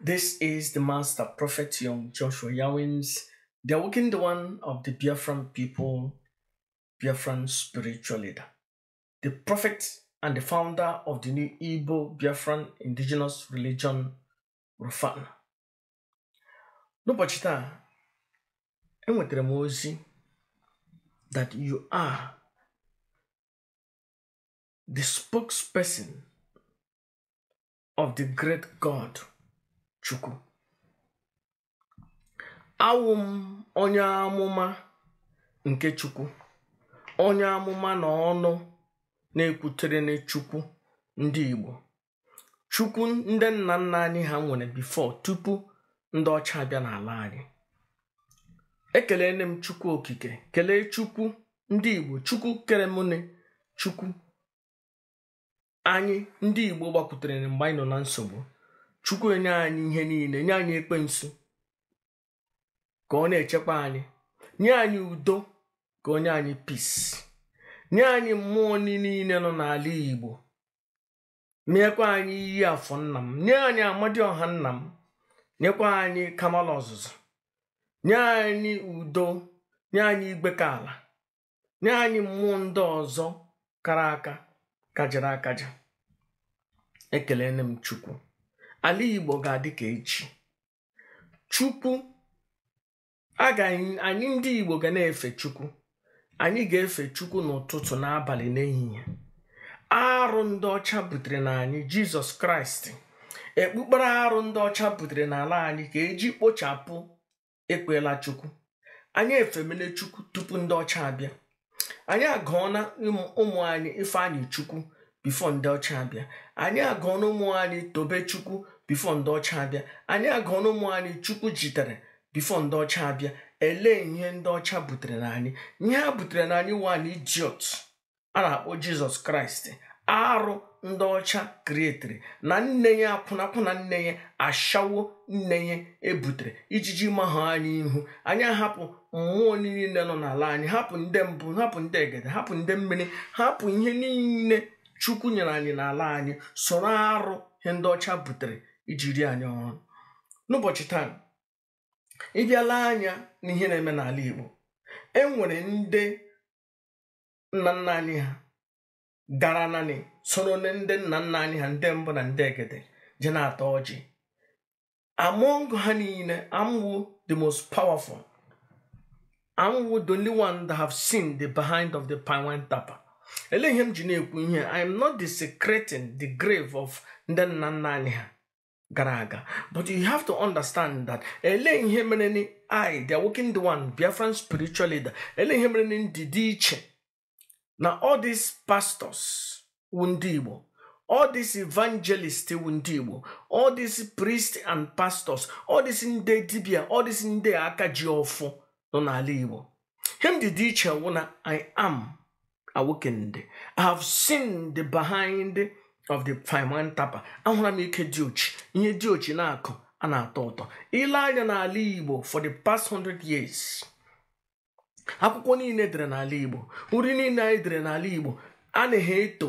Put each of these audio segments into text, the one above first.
This is the master prophet young Joshua Yawins, the awakened one of the Biafran people, Biafran spiritual leader, the prophet and the founder of the new Igbo Biafran indigenous religion, Rufana. N'ụbọchị taa, enwetara that you are the spokesperson of the great God Chukwu awụ m onye amụma nke Chukwu onye amụma na ọnụ na-ekwutere Chukwu ndị Igbo Chukwu ndị nna nna anyị ha nwere bifo tupu ndị ọcha bịa n'ala anyị ekelele m Chukwu okike kelee Chukwu ndị Igbo Chukwu kere Chukwu anyị ndị Igbo gbakwutere mgbe anyị nọ na nsogbu chukwu enye anyị ihe niile nye anyị ekpensu ka ọ na-echekwa anyị nye anyị udo ka onye anyị peace. nye anyị mmụọ niile nọ n'ala igbo meekwa anyị iyi afọ nna m nye anyị amadioha nna m nyekwa anyị kamal ọzụzụ nye anyị udo nye anyị igwe ka ala nye anyị mmụọ ndị ọzọ kara aka kajara akaja ekele nne m chukwu ala Igbo ga-adị ka echi Chukwu anyị ndị Igbo ga na-efe Chukwu anyị ga-efe Chukwu n'ụtụtụ n'abalị n'ehihie arụ ndị ọcha butere na anyị Jizọs Kraịst ekpukpere arụ ndị ọcha butere n'ala anyị ka eji kpochapụ ekpela Chukwu anyị efemele Chukwu tupu ndị ọcha abịa anyị agụọna ụmụ anyị Ifeanyị Chukwu bifo ndị ọcha abịa anyị agụọna ụmụ anyị tobe chukwu bifo ndị ọcha abịa anyị agụọna ụmụ anyị chukwu jitere bifo ndị ọcha abịa elee ihe ndị ọcha butere na anyị ihe ha butere na anyị wan ijiot a na-akpọ jizọs kraịst arụ ndị ọcha krietiri na nne ya akwụnakwụna nne ya ashawo nne ya ebutere ijiji mahụ anyị ihu anyị ahapụ mmụọ niile nọ n'ala anyị hapụ ndị mbụ hapụ ndị egede hapụ ndị mmiri hapụ ihe niile chukwu nyere anyị n'ala anyị soro arụ ihe ndị ọcha butere iji rie anyị ọrụ n'ụbọchị taa ịbịala anya n'ihe na-eme n'ala Igbo e nwere ndị nna nna anyị ha gara naanị soro ndị nna nna anyị ha ndị mbụ na ndị egede je na atọ ọjị among ha niile amwu the most powerful amwu the only one that have seen the behind of the pine wine Elihim ihe I am not desecrating the grave of ndị nna nna but you have to understand that Elihim ihe mere I the working the one Biafran spiritual leader Elihim ihe mere ni ndị all these pastors Wundibo, all these evangelists Wundibo, all these priests and pastors all these ndị dibia all these ndị aka ji ọfụ Him the Igbo I am awakened i have seen the behind of the Fine Tapa ahụla m ike dị ochi ihe dị ochi na-akụ a na-atọ ụtọ ile anya n'ala Igbo for the past hundred years akwụkwọ niile edere n'ala Igbo nri niile anyị dere n'ala Igbo a na-ehe eto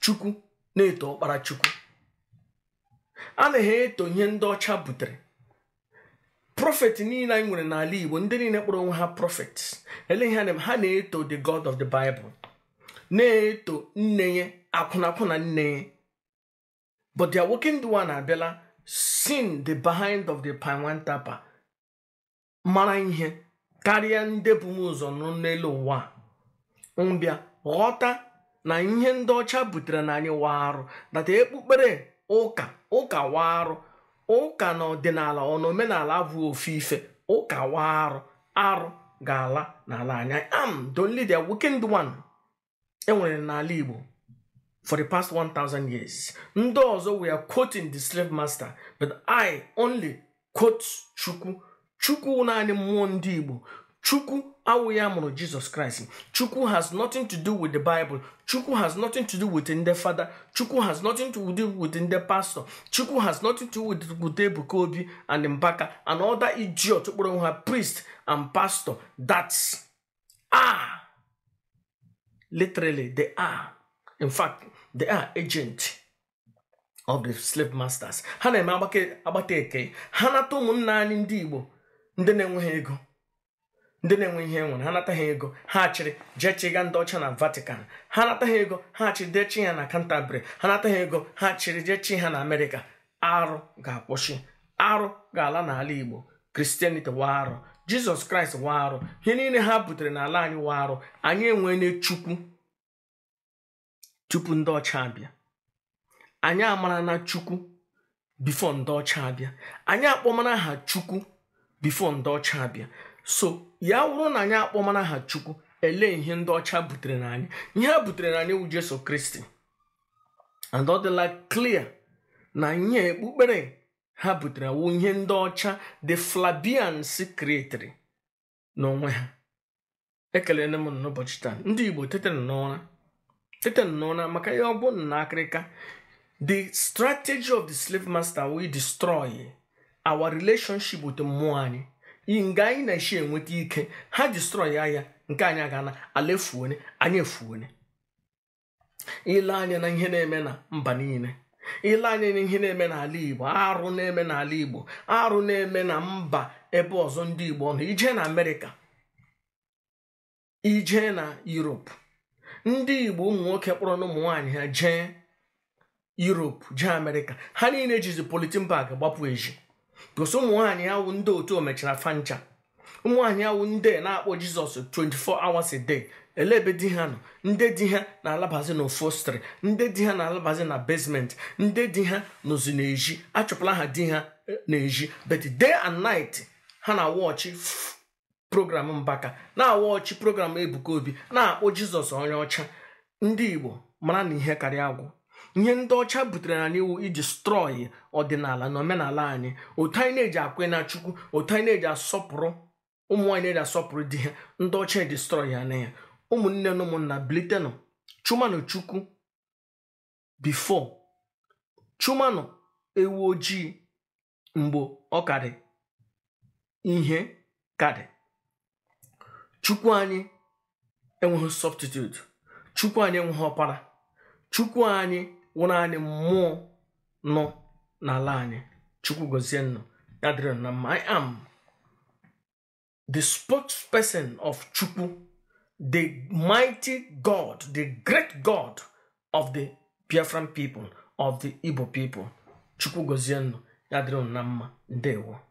Chukwu na-eto ọkpara Chukwu a na-ehe eto ihe ndị ọcha butere prọfet niile anyị nwere n'ala igbo ndị niile kpọrọ onwe ha prọfet eleghị ha na-eto the god of the bible na-eto nne ya akwụnakwụna nne ya but the awoken the one abịala sin the behind of the pinwan tapa mara ihe karịa ndị bụ m ụzọ n'elu ụwa mbịa ghọta na ihe ndị ọcha butere na anyị warụ data ekpukpere ụka ụka arụ. ụka na ọdịnala ọ na omenala bụ ofu ife ụka wa arụ ga-ala n'ala anya am don the a one enwere n'ala Igbo for the past 1000 years ndị ọzọ we are quoting the slave master but I only quote Chukwu Chukwu naanị mmụọ ndị Igbo Chukwu Awuya mụrụ Jesus Christ. Chukwu has nothing to do with the Bible. Chukwu has nothing to do with the father. Chukwu has nothing to do with the pastor. Chukwu has nothing to do with Gude Bukobi and Mbaka and other idiot kpọrọ priest and pastor. That's ah, Literally, they are. In fact, they are agent of the slave masters. Hana na-eme agbata eke. Ha na ndị ego. ndị na-enwe ihe enwere ha nataghị ego ha chịrị jee chịga ndị ọcha na vatican ha nata ha ego ha chịrị dechi ya na canterbury ha nata ha ego ha chịrị jee chi ha na amerịka arụ ga-akwụsị arụ ga-ala n'ala igbo kristianity wa arụ jizọs kraịst wa arụ ihe niile ha butere n'ala anyị wa arụ anyị enwele chukwu tupu ndị ọcha abịa anyị amara na chukwu bifo ndị ọcha abịa anyị akpọmara ha chukwu bifo ndị ọcha abịa so ya wụrụ na anyị akpọmana ha chukwu elee ihe ndị ọcha butere na anyị ihe ha butere na anyị wụ jesu kristi and ọ dịla clear na nye ekpukpere ha butere wụ ihe ndị ọcha the flabians creatri n'onwe ha ekelere m n'ụbọchị taa ndị igbo tetara n'ụra maka ihe ọ bụ na akịrịka the strategy of the slave master will destroy our relationship with mmụọ anyị nga anyị na-eshi enweta ike ha distrọy ya nke anyị aga na ala efuone anyị efuone ile anya na ihe na-eme na mba niile ile anya na ihe na-eme n'ala igbo arụ na-eme n'ala igbo arụ na-eme na mba ebe ọzọ ndị igbo nọ ije na amerịka ije na europe ndị igbo ụmụ nwoke kpọrọ na ụmụ nwaanyị ha jee europe jee amerịka ha niile jizi politin bag gbapụ eji gosi ụmụ nwaanyị awụ ndị otu omechara fancha ụmụ nwaanyị awụ ndị na-akpọ jizọs 24 hours a day ele ebe di ha nọ ndị di ha na-alabazi na ofostri ndị di ha na-alabazi na basement ndị di ha nọzi n'ezi achọpụla ha di ha e, n'ezi but day and night ha na wọchi program mbaka na-awọchi program ebuka obi na-akpọ jizọs onye ọcha ndị igbo mara na ihe karịa agwụ ihe ndị ọcha butere na iwu iji strọyi ọdịnala na omenala anyị otu anyị na-eji akwe na chukwu otu anyị na-eji asọpụrụ ụmụ nwaanyị na-eji asọpụrụ di ha ndị ọcha distrọyi ya na ya ụmụnne na ụmụnna bilitenụ chumanụ chukwu bifo chumanụ ewu ojii mgbe ọ karị ihe karị chukwu anyị enweghị substitute chukwu anyị enweghị ọkpara chukwu anyị wụrụ anyị mmụọ nọ n'ala anyị chukwu gozie nnụ ya m i am the spokesperson of chukwu the mighty god the great god of the biafran people of the igbo people chukwu gozie nnụ ya mma ndewo